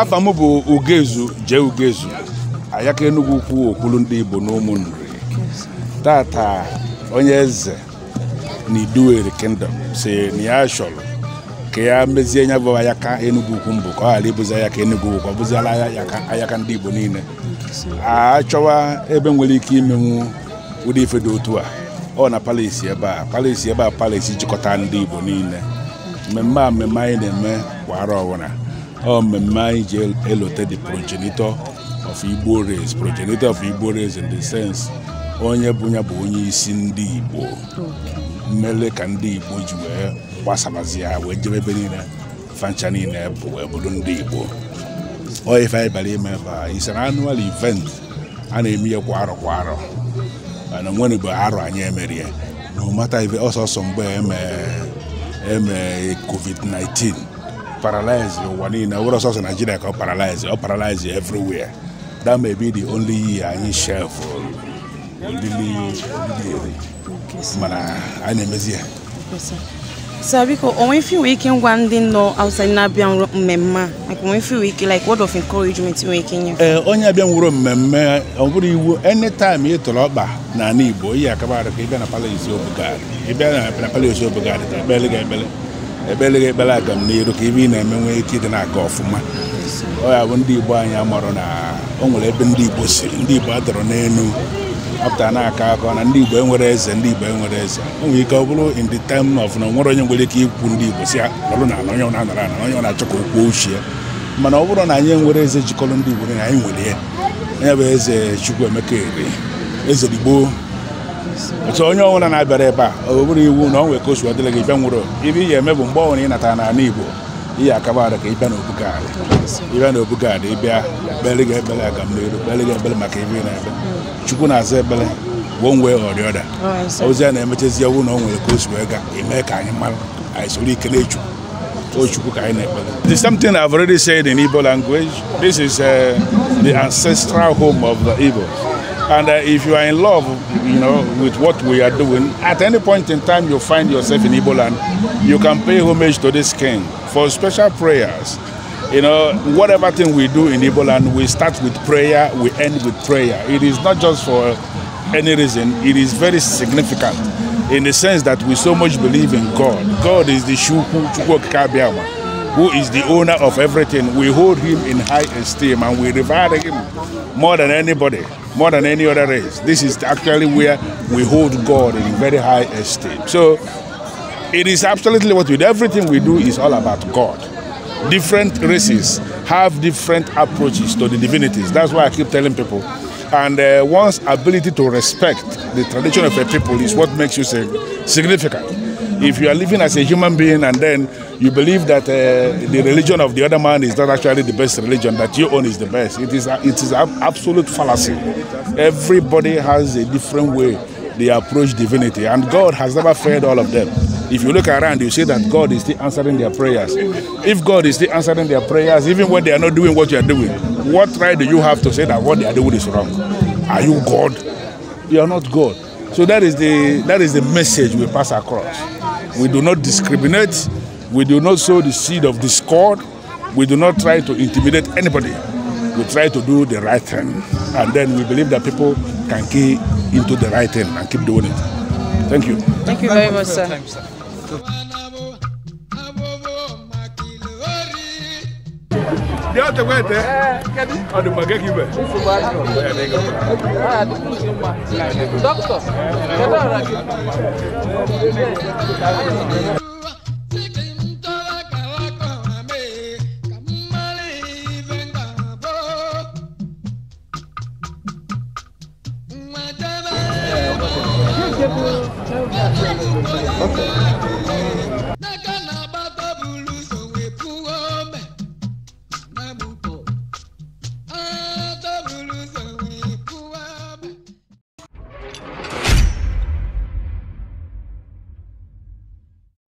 afọ m bụ ugezu jee ugezu ayaka enugwu ukwu okwulu ndị igbo n'ụmụnna tata onye eze na Iduwere kingdom si na ya chọrọ ka ya mezie nya bụ ayaka Enugu ukwu mbụ ka ọ ghara ịbụzi ayaka Enugu ukwu ọ bụziala ayaka ndị Igbo niile a ebe nwere ike imenwu ụdị ife dị otu a ọ na palisi ebe a palisi ebe a palis jikọta ndị Igbo niile mmemme a mmemme anyị na-eme kwa arọ ọbụla ọ mmemme anyị ji elote the progenitor of Igbo race progenitor of Igbo race in the sense onye bụ ya bụ onye isi ndị Igbo mmele ka ndị Igbo ji wee gbasabazi wee jebe ebe niile fancha niile bụ bụrụ ndị Igbo onye ife anyị bịara ime ebe a isere annual event a na-eme ya kwa arọ kwa arọ mana nwere mgbe arọ anyị emerie na ụmata ife ọsọsọ mgbe eme e covid-19 paralize ụwa niile were ọsọsọ Nigeria ka ọ paralize ọ paralyze everywhere that may be anyị shelf mana anyị sir biko onwe fi nwere ike ngwa ndị nọ na-abịa mmemme like onwe fi nwere ike like word of encouragement nwere ike nye ee onye abịa nwụrụ mmemme ọ bụrụ iwu anytime ị tụrụ ọkpa n'ala Igbo ihe akabarụ ka ịbịa na palace obogad ịbịa na palace obogad ka ekpele gị ekpele ekpele gị ekpele aga m n'iru ka ibe ị na-eme nwee ike ịdị na-aga ọfụma ọ ya bụ ndị Igbo anyị amarụ na o nwere ebe ndị Igbo ndị Igbo adọrọ n'elu apụta na-aka akọ na ndị Igbo enwere eze ndị Igbo enwere eze o nwere ike ọ bụrụ ndị the time of na nwere onye nwere ike ikwu ndị Igbo si ọrụ na ala na anara ala onye na-achọ ka okwu ochie mana ọ bụrụ na anyị enwere eze jikọrọ ndị Igbo na anyị nwere ya onye bụ eze Chukwuemeka Eri eze Igbo otu onye ọbụla na-abịara ebe a ọ bụrụ iwu na ọ nwere ka o si gị bịa nwụrụ ibe ị ga-eme bụ mgbe ọbụla ị natara n'ala Igbo ihe akaba ka ịbịa n'obugaadị ịbịa n'obugaadị ịbịa ekpere gị ekpere aga m n'elu ekpere gị ekpere maka ebe ị na-ebe chukwu na-aza ekpere gwụọ nwee ọrịọda ozi a na-emechezi ewu na o nwere ka o si wee gaa eme ka anyị mara anyị soro ike na o Ochukwu ka anyị na-ekpere the same thing I've already said in Igbo language this is uh, the ancestral home of the Igbos And uh, if you are in love, you know, with what we are doing, at any point in time you find yourself in Igbo land, you can pay homage to this king for special prayers. You know, whatever thing we do in Igbo land, we start with prayer, we end with prayer. It is not just for any reason, it is very significant in the sense that we so much believe in God. God is the Shukwu Chukwu Kabiama. who is the owner of everything, we hold him in high esteem and we revere him more than anybody, more than any other race. This is actually where we hold God in very high esteem. So it is absolutely what we do. Everything we do is all about God. Different races have different approaches to the divinities. That's why I keep telling people. And uh, one's ability to respect the tradition of a people is what makes you significant. If you are living as a human being and then you believe that uh, the religion of the other man is not actually the best religion, that your own is the best. It is, a, it is an absolute fallacy. Everybody has a different way they approach divinity, and God has never failed all of them. If you look around, you see that God is still answering their prayers. If God is still answering their prayers, even when they are not doing what you are doing, what right do you have to say that what they are doing is wrong? Are you God? You are not God. So that is the that is the message we pass across. We do not discriminate We do not sow the seed of discord. We do not try to intimidate anybody. We try to do the right thing. And then we believe that people can key into the right thing and keep doing it. Thank you. Thank you very much, sir. Okay.